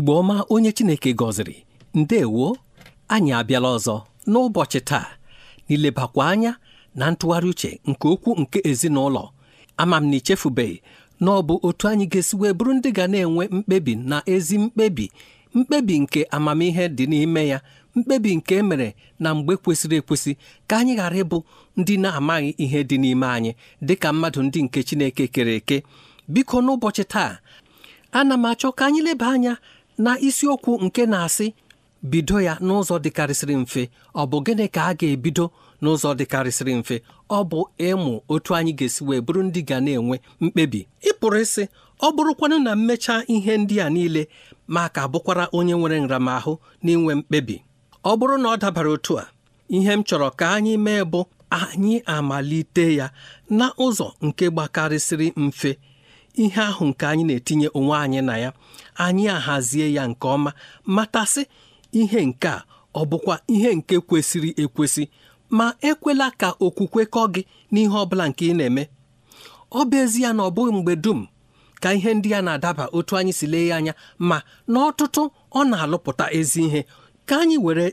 Igbe ọma onye chineke gọziri ndewo anyị abịala ọzọ n'ụbọchị taa n'ilebakwa anya na ntụgharị uche nke okwu nke ezinụlọ ama m na ichefubeghị na ọ bụ otu anyị ga-esi wee bụrụ ndị ga na-enwe mkpebi na ezi mkpebi mkpebi nke amamihe dị n'ime ya mkpebi nke e mere na mgbe kwesịrị ekwesị ka anyị ghara ịbụ ndị na-amaghị ihe dị n'ime anyị dịka mmadụ ndị nke Chineke kere eke biko n'ụbọchị taa ana m achọ ka anyị leba anya na isiokwu nke na-asị bido ya n'ụzọ dịkarịsịrị mfe ọ bụ gịnị ka a ga-ebido n'ụzọ dịkarịsịrị mfe ọ bụ ịmụ otu anyị ga-esi wee bụrụ ndị ga na-enwe mkpebi ịpụrụ isi ịsị ọ bụrụkwanụ na mmecha ihe ndị a niile maka bụkwara onye nwere nramahụ n'inwe mkpebi ọ bụrụ na ọ dabara otu a ihe m chọrọ ka anyị mee bụ anyị amalite ya na ụzọ nke gbakarịsịrị mfe ihe ahụ nke anyị na-etinye onwe anyị na ya anyị ahazie ya nke ọma matasị ihe nke a ọ bụkwa ihe nke kwesịrị ekwesị ma ekwela ka okwukwe kọ gị n'ihe ọ bụla nke ị na-eme ọ bụ ezi ya na ọ bụghị mgbe dum ka ihe ndị ya na-adaba otu anyị si lee ya anya ma n'ọtụtụ ọ na-alụpụta ezi ihe ka anyị were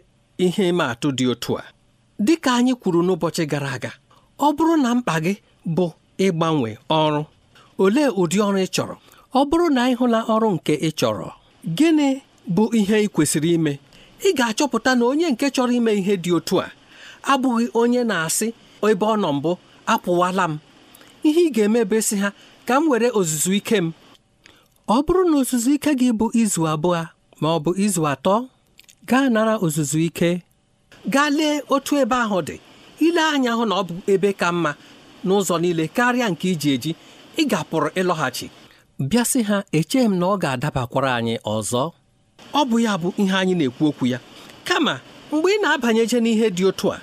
ihe ịma atụ dị otu a dị ka anyị kwuru n'ụbọchị gara aga ọ bụrụ na mkpa gị bụ ịgbanwe ọrụ olee ụdị ọrụ ị chọrọ ọ bụrụ na ị hụla ọrụ nke ị chọrọ gịnị bụ ihe ị kwesịrị ime ị ga-achọpụta na onye nke chọrọ ime ihe dị otu a abụghị onye na-asị ebe ọ nọ mbụ apụwala m ihe ị ga-emebe sị ha ka m were ozuzu ike m ọ bụrụ na ozuzu ike gị bụ izu abụọ ma ọ bụ izu atọ gaa nara ozuzu ike gaa lee otu ebe ahụ dị ile anya hụ na ọ bụ ebe ka mma n'ụzọ niile karịa nke iji eji ị ga-apụrụ ịlọghachi bịa sị ha echeghị m na ọ ga-adabakwara anyị ọzọ ọ bụ ya bụ ihe anyị na-ekwu okwu ya kama mgbe ị na-abanyeje n'ihe dị otu a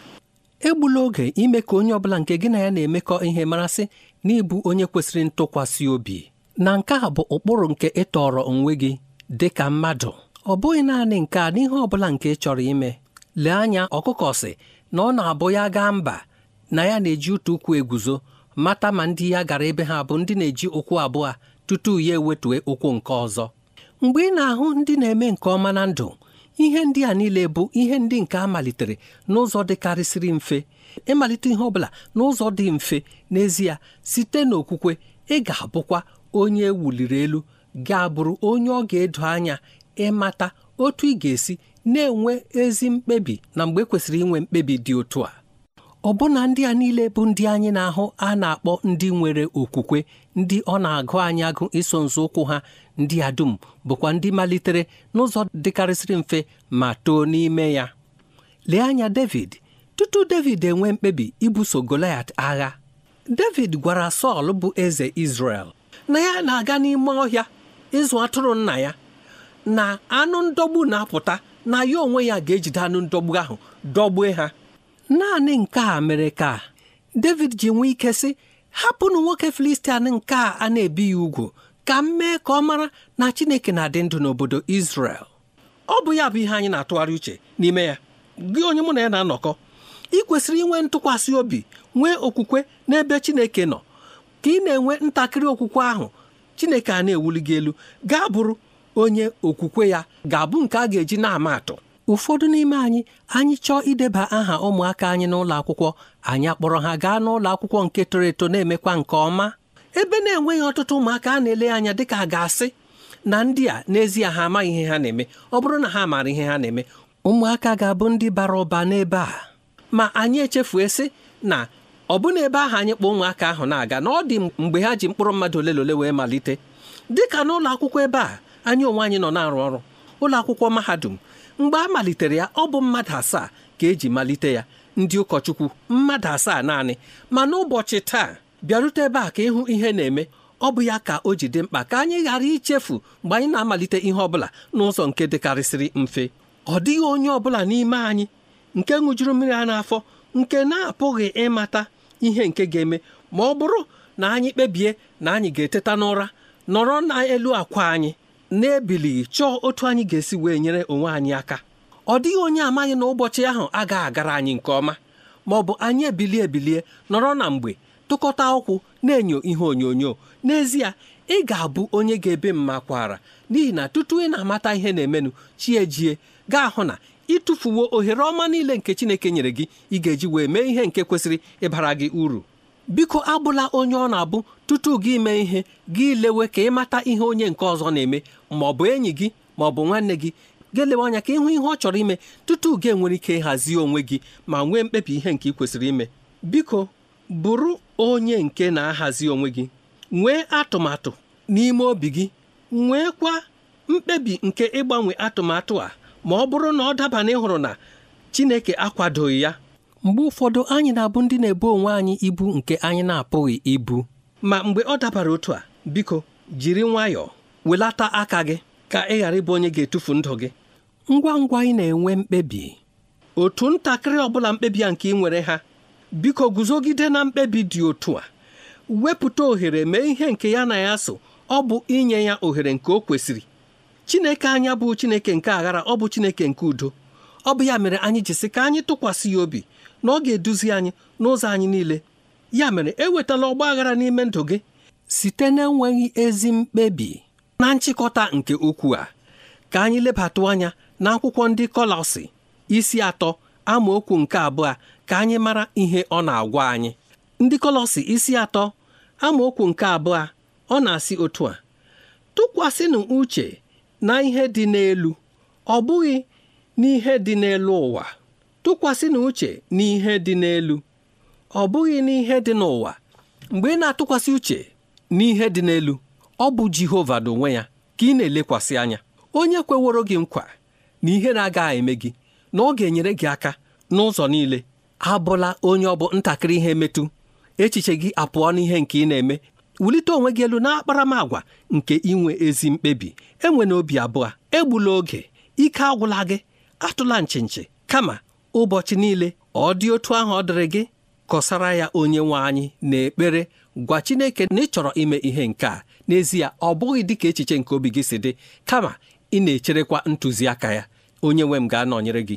egbula oge ime ka onye ọbụla nke gị na ya na-emekọ ihe marasị n'ịbụ onye kwesịrị ntụkwasị obi na nke a bụ ụkpụrụ nke ịtọrọ onwe gị dị ka mmadụ ọ bụghị naanị nke a n'ihe ọ bụla nke ị chọrọ ime lee anya ọkụkọ si na ọ na-abụ ya gaa mba na ya na-eji ụtụ ụkwụ eguzo mata ma ndị ya gara ebe ha bụ ndị na-eji ụkwụ abụọ tutu ya ewetue ụkwụ nke ọzọ mgbe ị na-ahụ ndị na-eme nke ọma na ndụ ihe ndị a niile bụ ihe ndị nke a malitere n'ụzọ dịkarịsịrị mfe ịmalite ihe ọbụla n'ụzọ dị mfe n'ezie site n'okwukwe ị ga-abụkwa onye e wuliri elu ga-abụrụ onye ọ ga-edo anya ịmata otu ị ga-esi na-enwe ezi mkpebi na mgbe e kwesịrị inwe mkpebi dị otu a ọbụna ndị a niile bụ ndị anyị na-ahụ a na-akpọ ndị nwere okwukwe ndị ọ na-agụ anyị agụ iso ụkwụ ha ndị a dum bụkwa ndị malitere n'ụzọ dịkarịsịrị mfe ma too n'ime ya lee anya David tutu David enwee mkpebi ibuso Goliat agha David gwara Sọl bụ eze Izrel na ya na-aga n'ime ọhịa ịzụ atụrụ nna ya na anụ ndọgbu na-apụta na ya onwe ya ga-ejide anụ ndọgbu ahụ dọgbue ha naanị nke a mere ka David ji nwee ike sị hapụnụ nwoke Filistia nke a na-ebighị ugwu ka m mee ka ọ mara na Chineke na-adị ndụ n'obodo isrel ọ bụ ya bụ ihe anyị na-atụgharị uche n'ime ya gị onye mụ na ya na-anọkọ ị kwesịrị inwe ntụkwasị obi nwee okwukwe n'ebe Chineke nọ ka ị na-enwe ntakịrị okwukwe ahụ Chineke a na-ewuli gị elu gaa bụrụ onye okwukwe ya ga-abụ nke a ga-eji na-ama atụ ụfọdụ n'ime anyị anyị chọọ ideba aha ụmụaka anyị n'ụlọ akwụkwọ anyị akpọrọ ha gaa n'ụlọ akwụkwọ nke toro eto na-emekwa nke ọma ebe na-enweghị ọtụtụ ụmụaka a na-ele anya ka a ga-asị na ndị a n'ezie ha amaghị ihe ha na-eme ọ bụrụ na ha maara ihe ha na-eme ụmụaka ga-abụ ndị bara ụba n'ebe a ma anyị echefue sị na ọ bụ ebe ahụ anyị kpọọ ụmụaka ahụ na-aga na ọ dị mgbe ha ji mkpụrụ mmadụ ole na ole wee malite dịka n'ụlọ akwụkwọ ebe a anyị onwe anyị nọ na-arụ ọrụ ụlọ akwụkwọ mahadum mgbe a malitere ya ọ bụ mmadụ asaa ka eji malite ya ndị ụkọchukwu mmadụ asaa naanị ma n'ụbọchị taa bịarute ebe a ka ịhụ ihe na-eme ọ bụ ya ka o ji dị mkpa ka anyị ghara ichefu mgbe anyị na-amalite ihe ọbụla n'ụzọ nke dịkarịsịrị mfe ọ dịghị onye ọbụla n'ime anyị nke ṅụjuru mmiri a n'afọ nke na-apụghị ịmata ihe nke ga-eme ma ọ bụrụ na anyị kpebie na anyị ga-eteta n'ụra nọrọ n'elu akwa anyị na-ebilighị chọọ otu anyị ga-esi wee nyere onwe anyị aka ọ dịghị onye amaghị na ụbọchị ahụ agaghị agara anyị nke ọma ma ọ bụ anyị ebilie ebilie nọrọ na mgbe tụkọta ụkwụ na-enyo ihe onyonyo n'ezie ị ga-abụ onye ga-ebe mma kwara n'ihi na tutu ị na-amata ihe na-emenụ chi ejie gaa hụ na ịtụfuwo ohere ọma niile nke Chineke nyere gị ị ga-eji wee mee ihe nke kwesịrị ịbara gị uru biko abụla onye ọ na-abụ tutu gị ime ihe gị lewe ka ịmata ihe onye nke ọzọ na-eme ma ọ bụ enyi gị ma ọ bụ nwanne gị ga-elewe anya ka ịhụ ihe ọ chọrọ ime tutu gị enwere ike ịhazi onwe gị ma nwee mkpebi ihe nke ị kwesịrị ime biko bụrụ onye nke na-ahazi onwe gị nwee atụmatụ n'ime obi gị nwee kwa mkpebi nke ịgbanwe atụmatụ a ma ọ bụrụ na ọ daba na ịhụrụ na Chineke akwadoghị ya mgbe ụfọdụ anyị na-abụ ndị na-ebo onwe anyị ibu nke anyị na-apụghị ibu ma mgbe ọ dabara otu a biko jiri nwayọọ welata aka gị ka ị ghara ịbụ onye ga-etufu ndụ gị ngwa ngwa ị na-enwe mkpebi otu ntakịrị ọbụla mkpebi a nke ị nwere ha biko guzogide na mkpebi dị otu a wepụta ohere mee ihe nke ya na ya so ọ bụ inye ya ohere nke o kwesịrị Chineke anya bụ Chineke nke aghara ọ bụ Chineke nke udo ọ bụ ya mere anyị jisi ka anyị tụkwasị ya obi na ọ ga-eduzi anyị n'ụzọ anyị niile ya mere ewetala ọgba aghara n'ime ndụ gị site na-enweghị ezi mkpebi na nchịkọta nke ukwu a ka anyị lebatụ anya na akwụkwọ ndị Kọlọsị isi atọ amaokwu nke abụọ ka anyị mara ihe ọ na-agwa anyị ndị Kọlọsị isi atọ amaokwu nke abụọ ọ na-asị otu a tụkwasịnụ uche na ihe dị n'elu ọ bụghị n'ihe dị n'elu ụwa tụkwasị na uche n'ihe dị n'elu ọ bụghị n'ihe dị n'ụwa mgbe ị na-atụkwasị uche n'ihe dị n'elu ọ bụ Jehova n'onwe ya ka ị na-elekwasị anya onye kweworo gị nkwa na ihe na-agaghị eme gị na ọ ga-enyere gị aka n'ụzọ niile abụla onye ọ bụ ntakịrị ihe metụ echiche gị apụọ n'ihe nke ị na-eme wulite onwe gị elu n'akparamagwa nke inwe ezi mkpebi enwe na obi abụọ egbula oge ike agwụla gị atụla nchinchi kama ụbọchị niile ọ dị otu ahụ ọ dịrị gị kọsara ya onye nwe anyị n'ekpere gwa Chineke na ị chọrọ ime ihe nke a n'ezie ọ bụghị dị ka echiche nke obi gị si dị kama ị na-echerekwa ntụziaka ya onye nwe m ga-anọnyere gị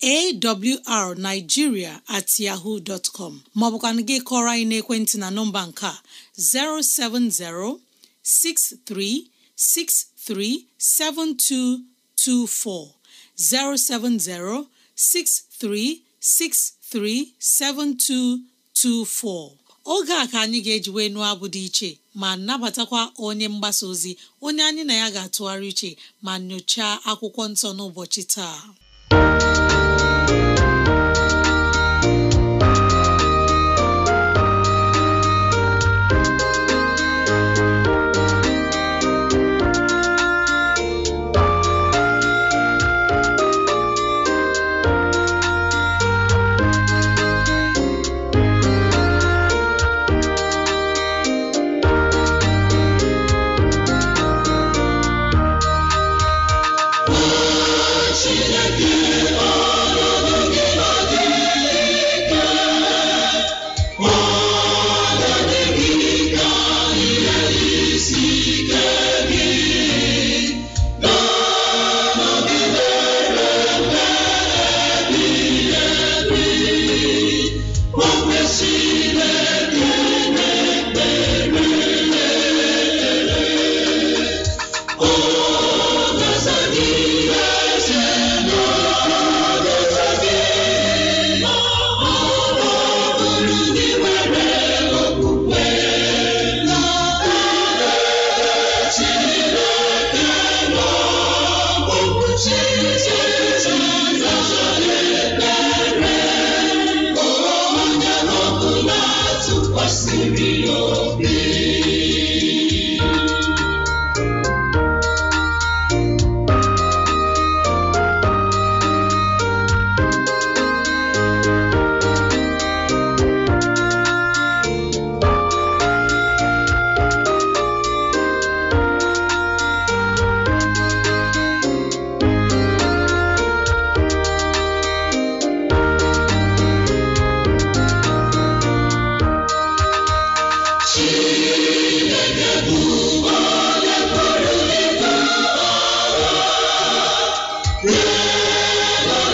awrnigeria@yahoo.com at yahoo dot com maọbụkwana gị kọrọ anyị n'ekwentị na nọmba nke a 07063637224 07063637224 oge a ka anyị ga-eji nụọ abụ dị iche ma nabatakwa onye mgbasa ozi onye anyị na ya ga-atụgharị iche ma nyochaa akwụkwọ nsọ n'ụbọchị taa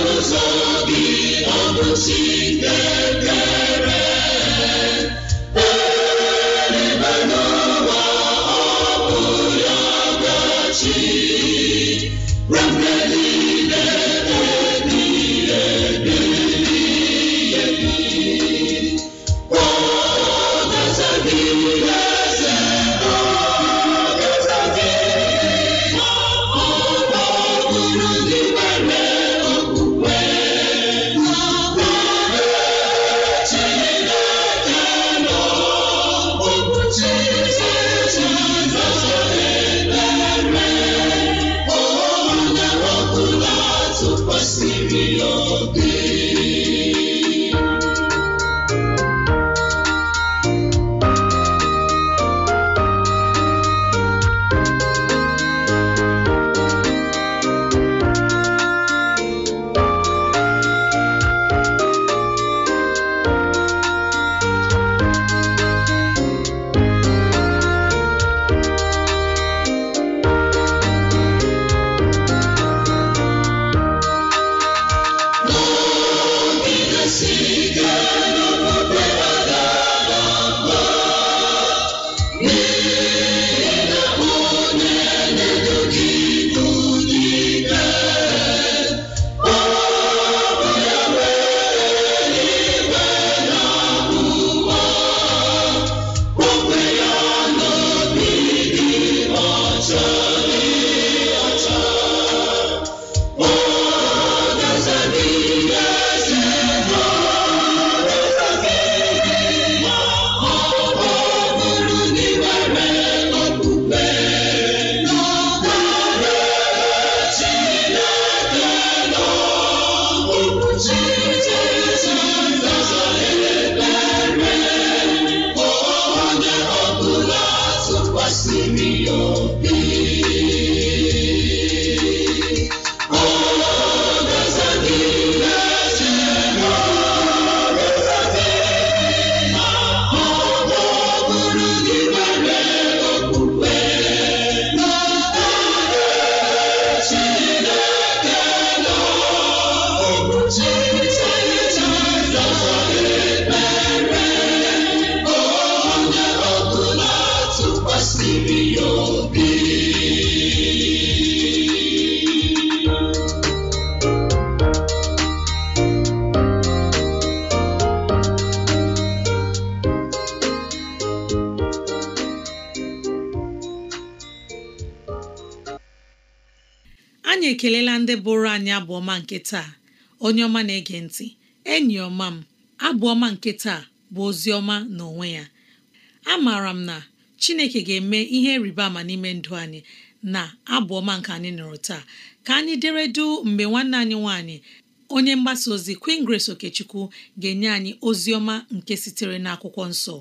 n'ụzọ obi ọ bụ ekelela ndị bụrụ anyị abụọma nke taa onye ọma na-ege ntị enyi ọma m abụọma nke taa bụ ozi ọma n'onwe ya A maara m na Chineke ga-eme ihe rịba ama n'ime ndụ anyị na abụọma nke anyị nụrụ taa ka anyị deredu mgbe nwanne anyị nwanyị onye mgbasa ozi Queen Grace Okechukwu ga-enye anyị ozi ọma nke sitere n'akwụkwọ nsọ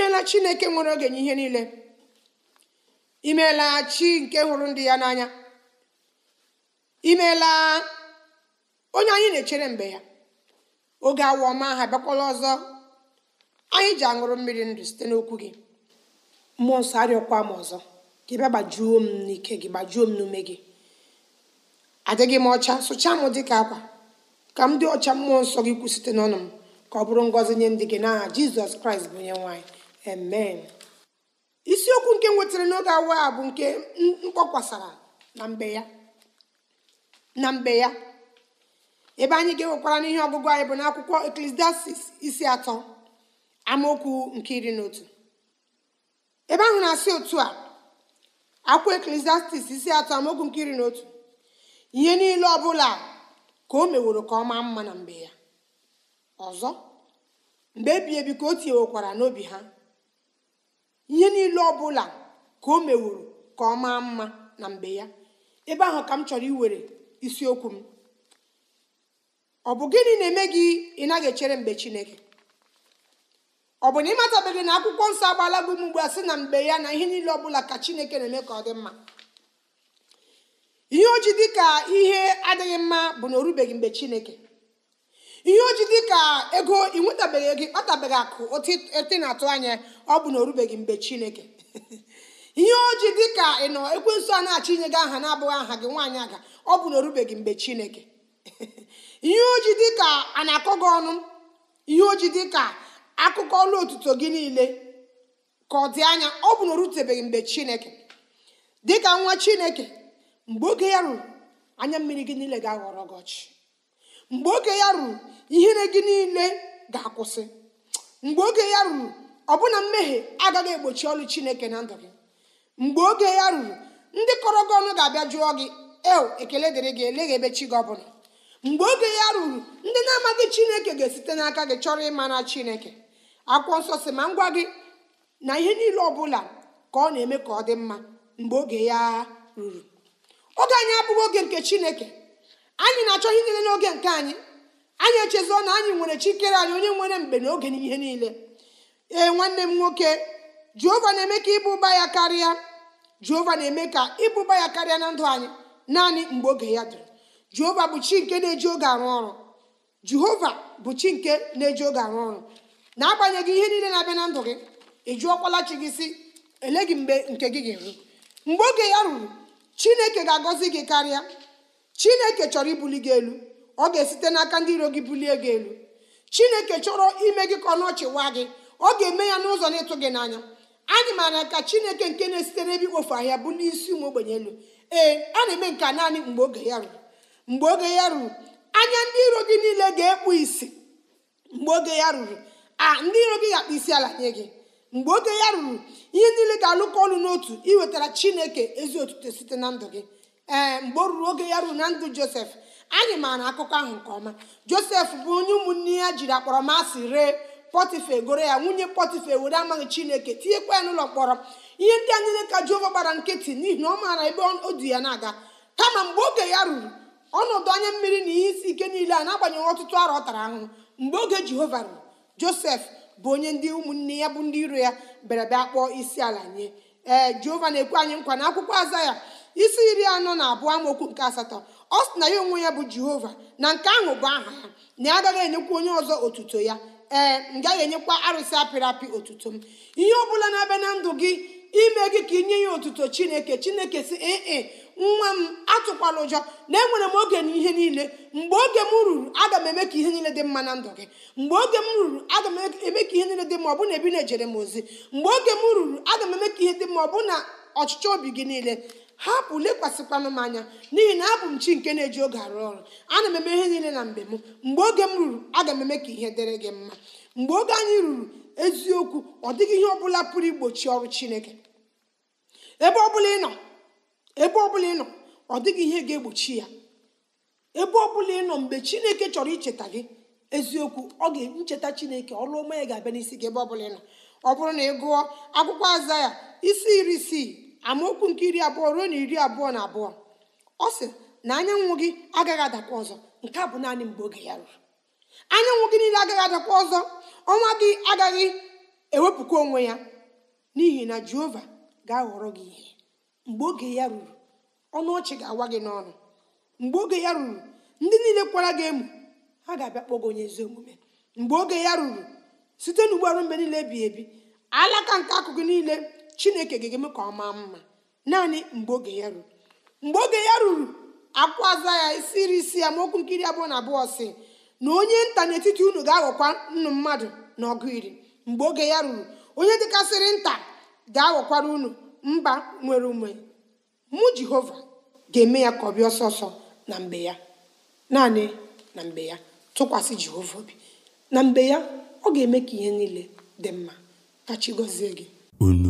imeela chineke nwere oge n'ihe niile imeela chi nke hụrụ ndị ya n'anya imeela onye anyị na-echere mgbe ya oge awa ọma ha bịakwala ọzọ anyị ji aṅụrụ mmiri ndụ site n'okwu gị mmụọ nsọ arịọkwa m ọzọ gị bịa gbajuo m n'ike gị gbajuo m n'ume gị adịghị m ọcha sụchaa m dị ka akwa ka m dị ọcha mmụọ nsọ gị kwụ site n'ọnụ m ka ọ bụrụ ngọzi nye ndị gị n'aha jizọs kraịst bụ onye nwaanyị amen isiokwu nke nwetara n'oge awa a bụ nke mkpọkwasara na mbe ya na mbe ya ebe anyị ga-enwekwara n'ihe ọgụgụ anyị bụ n'akwụkwọ eklesiastis isi atọ amaokwu nke iri na otu ebe ahụ na-asị otu a akwụkwọ eklesiastis isi atọ amaokwu nke iri na otu ihe niile ọ bụla ka o meworo ka ọ maa mma na mbe ya ọzọ mgbe ebi ebi ka o tinyewekwara n'obi ha ihe niile ọ bụla ka o mewuru ka ọ maa mma na mgbe ya ebe ahụ ka m chọrọ iwere isiokwu m ọ bụ gịnị na-eme gị ị naghị echere mgbe chineke ọ bụ na ị ịmatabeghị na akwụkwọ nsọ agbaala gị m ugbu a sị na mgbe ya na ihe niile ọbụla ka chineke na-eme ka ọ dị mma ihe o dị ka ihe adịghị mma bụ na o rubeghị mgbe chineke ihe oji dị ka ego ịnwetabeghị ego ịkpatabeghị akụ ote na-atụ anya ọ bụ na o mgbe chineke ihe oji dị ka ị nọ ekwensu a na achị inye gị aha na-abụghị aha gị nwaanyị aga ọ bụ na o mgbe chineke ihe oji dị ka a na-akọ gị ọnụ ihe oji dị ka akụkọ ọlụ otuto gị niile ka ọ dị anya ọ bụ na o rutebeghị mgbe chineke dịka nwa chineke mgbe oge ya ruru anya mmiri gị niile ga-aghọrọ gị ọchị mgbe oge ya ruru ihere gị niile ga-akwụsị mgbe oge ya ruru ọbụna mmehie agaghị egbochi ọlụ chineke na ndụ gị mgbe oge ya ruru ndị kọrọ gị ọnụ ga-abịa jụọ gị eo ekele dịrị gị eleghị ebe chi gị ọbụla mgbe oge ya ruru ndị na-amaghị chineke ga-esite n'aka gị chọrọ ịmara chineke akwụkwọ nsọ si ma ngwa gị na ihe niile ọ bụla ka ọ na-eme ka ọ dị mma mgbe oge ya ruru oge anyị abụghị oge nke chineke anyị na-achọ ihe niile n'oge nke anyị anyị echezọ na anyị nwere chikere anyị onye nwere mgbe n'oge ihe niile ee nwanne m nwoke jehova na-eme ka ịbụba ya karịa jehova na-eme ka ịbụba ya karịa na ndụ anyị naanị mgbe oge ya dịrị jehova bụ chi nke na-eji oge arụ ọrụ jehova bụ chi nke na-eji oge arụ ọrụ na-agbanyeghị ihe niile na-abịa na ndụ gị eji jụọkwala chi gị si ele gị mgbe nke gị ga-eru mgbe oge ya ruru chineke ga-agọzi gị karịa chineke chọrọ ibuli gị elu ọ ga-esite n'aka ndị iro gị bulie gị elu chineke chọrọ ime gị ka ọ nọchịwa gị ọ ga-eme ya n'ụzọ na-ịtụ gị n'anya anyị maara ka chineke nke na-esite n'ebe ikpofu ahịa bụ n'isi ụmụ ogbenye elu ee a na-eme nke naanị mgbe oge ya ruru mgbe oge ya ruru anya ndị iro gị niile ga-ekpu isi mgbe oge ya ruru a ndị iro gị ga-akpa isi ala nye gị mgbe oge ya ruru ihe niile ga-alụkọ ọnụ n'otu iwetara chineke ezi otuto site na ndụ gị ee eh, mgbe o ruru oge ya ruru na ndụ josef anyị maara akụkọ ahụ nke ọma josef bụ onye ụmụnne ya jiri akpọrọmasị ree pọtifa goro ya nwunye pọtifa were amaghị chineke tinyekwa ya n'ụlọ mkpọrọ ihe ndị a niile ka jehova gbara nkịtị n'ihi na ọ maara ebe o du ya na-aga kama mgbe oge ya ruru ọnọdụ anya mmiri na ihe isi ike niile a na-agbanyeghị ọtụtụ arọ ọ tara ahụhụ mgbe oge jehova ruru josef bụ onye ndị ụmụnne ya bụ ndị iro ya bịara bịa kpọọ isi ala nye ee eh, jehova na-ekwe anyị nkwa na akwụkwọ aza ya isi iri anọ na abụọ amaokwu nke asatọ ọ sị na ya onwe ya bụ jehova na nke ahụ bụ aha ya na ya agaghị enyekwa onye ọzọ otuto ya ee m gaghị enyekwa arụsị apịrị apị otuto m ihe ọ bụla na-abịa na ndụ gị ime gị ka inye ya otuto chineke chineke si ee e, nwa m atụkwala ụjọ na enwere m oge na ihe niile mgbe oge m ruru aga m eme ka ihe niile dị mma na ndụ gị mgbe oge m ruru aga m eme ka ihe niile dị mma ọ bụ na ebi na-ejere m ozi mgbe oge m ruru aga m eme ka ihe dị mma ọ bụ na ọchịchọ obi gị niile hapụ lekwasịkwanụ m anya n'ihi na abụ m chi nke na-eji oge arụ ọrụ ana m eme ihe niile na mgbe m mgbe oge m ruru aga m eme ka ihe dịrị gị mma mgbe oge anyị ruru eziokwu ọ dịghị ihe ọbụla pụrụ igbochi ọrụ chineke ebe ọbụla ị nọ ebe ọbụla ị nọ ọ dịghị ihe ga-egbochi ya ebe ọbụla ị nọ mgbe chineke chọrọ icheta gị eziokwu ọ ga-ncheta chineke ọrụ ọma ya ga-abịa n'isi gị ebe ọbụla ị nọ ọ bụrụ na ị gụọ akwụkwọ aza ya isi iri isii amaokwu nke iri abụọ ruo na iri abụọ na abụọ ọ sị na anyanwụ gị agaghị adakwa ọzọ nke a bụ naanị mgbe oge ya ruru anyanwụ gị niile agaghị adakwa ọzọ ọnwa gị agaghị ewepụkwa onwe ya n'ihi na jehova ga-aghọrọ gị ihe mgbe oge ya ruru ọnụ ọchị ga-awa gị n'ọnụ mgbe oge ya ruru ndị niile kwara gị emu ha ga-abịa kpọgo gị onye ezi omume mgbe oge ya ruru site n'ugbo arụ mgbe niile ebighị ebi alaka nke akụkụ niile chineke ga-eme ka ọ maa mma naanị mgbe oge ya ruru mgbe oge ya ruru akwụaza ya isiri isi ya ma okwu nkiri abụọ na abụọ si na onye nta n'etiti unu ga-aghọkwa nnu mmadụ na ọgụ iri mgbe oge ya ruru onye dịkasịrị nta ga-aghọkwara unu mba nwere ume mụ jehova ga-eme ya ka ọ bịa ọsọ na mgbe ya naanị na mgbe ya tụkwasị jehova obi na mgbe ya ọ ga-eme ka ihe niile dị mma ka chi gọzie gị unu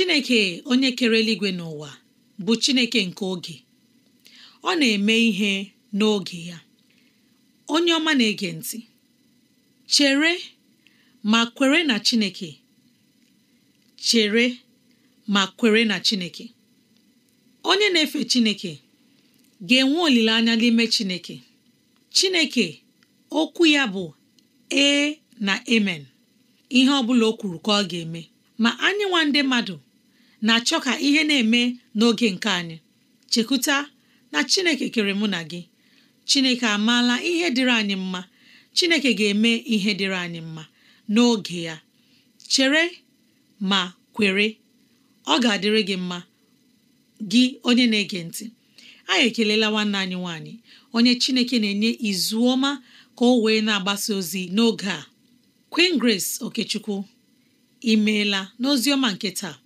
chineke onye kere eluigwe n'ụwa bụ chineke nke oge ọ na-eme ihe n'oge ya onye ọma na-ege ntị chere ma kwere na chineke chere ma kwere na chineke onye na-efe chineke ga-enwe olileanya n'ime chineke chineke okwu ya bụ ee na emen ihe ọ bụla o kwuru ka ọ ga-eme ma anyị nwa ndị mmadụ na-achọ ka ihe na-eme n'oge nke anyị chekwuta na chineke kere mụ na gị chineke amaala ihe dịrị anyị mma chineke ga-eme ihe dịrị anyị mma n'oge ya chere ma kwere ọ ga-adịrị gị mma gị onye na-ege ntị anyị ekelela nwanne anyị nwanyị onye chineke na-enye izu ọma ka o wee na-agbasa ozi n'oge a Queen Grace Okechukwu imeela n'ozi ọma nke taa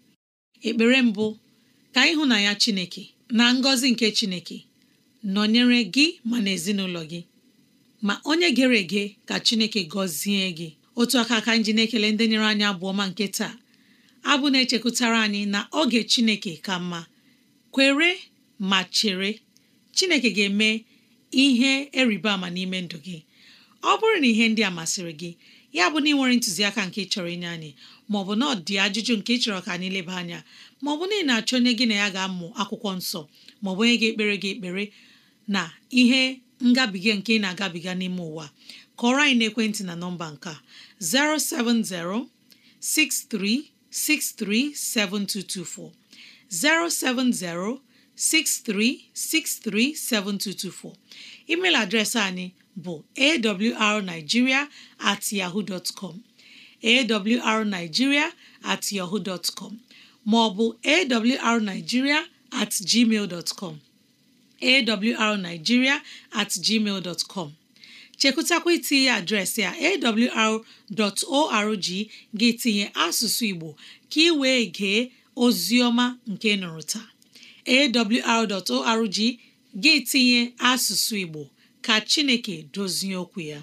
ekpere mbụ ka ịhụ na ya chineke na ngọzi nke chineke nọnyere gị ma na ezinụlọ gị ma onye gere ege ka chineke gọzie gị otu aka aka nji na-ekele ndị nyere anyị abụọ ma nke taa abụ na-echekwutara anyị na oge chineke ka mma kwere ma chere chineke ga-eme ihe eriba ama n'ime ndụ gị ọ bụrụ na ihe ndị a masịrị gị ya bụ na ị nwere ntụziaka nke chọrọ inye anyị ma maọbụ na ọ dị ajụjụ nke ị chọrọ ka anyị leba anya ma ọ bụ na ị na-achọ onye gị na ya ga-amụ akwụkwọ nsọ ma ọ maọbụ onye ga-ekpere gị ekpere na ihe ngabiga nke ị na-agabiga n'ime ụwa kọrọ anyị ekwentị na nọmba nke a 07063637224 07063637224 email adreesị anyị bụ awrnigeria at yahoo dot com awrnigeria at yahoo dot com maọbụ awrnigeria at gmail dot com at gmail dot com itinye adreesị a awr.org gị tinye asụsụ Igbo ka ị wee gee oziọma nke nụrụ taa awr.org gị tinye asụsụ Igbo ka Chineke dozie okwu ya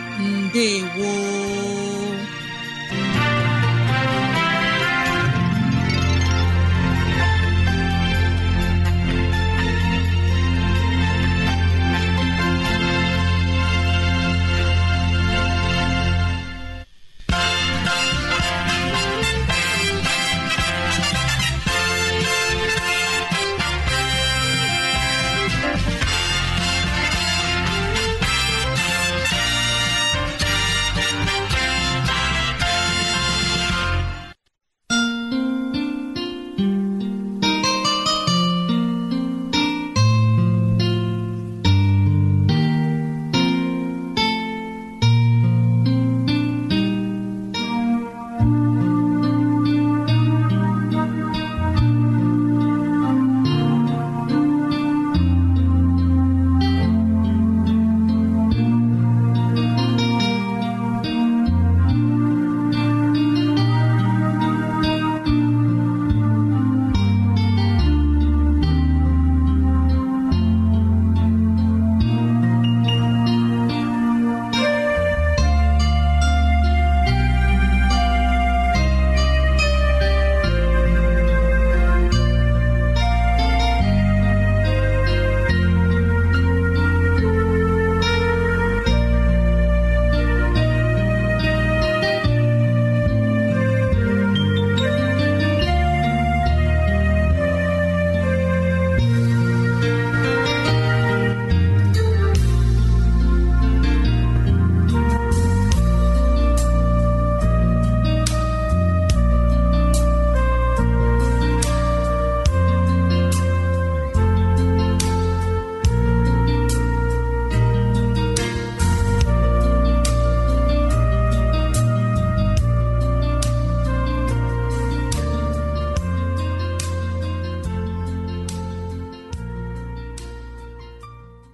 mbe gwo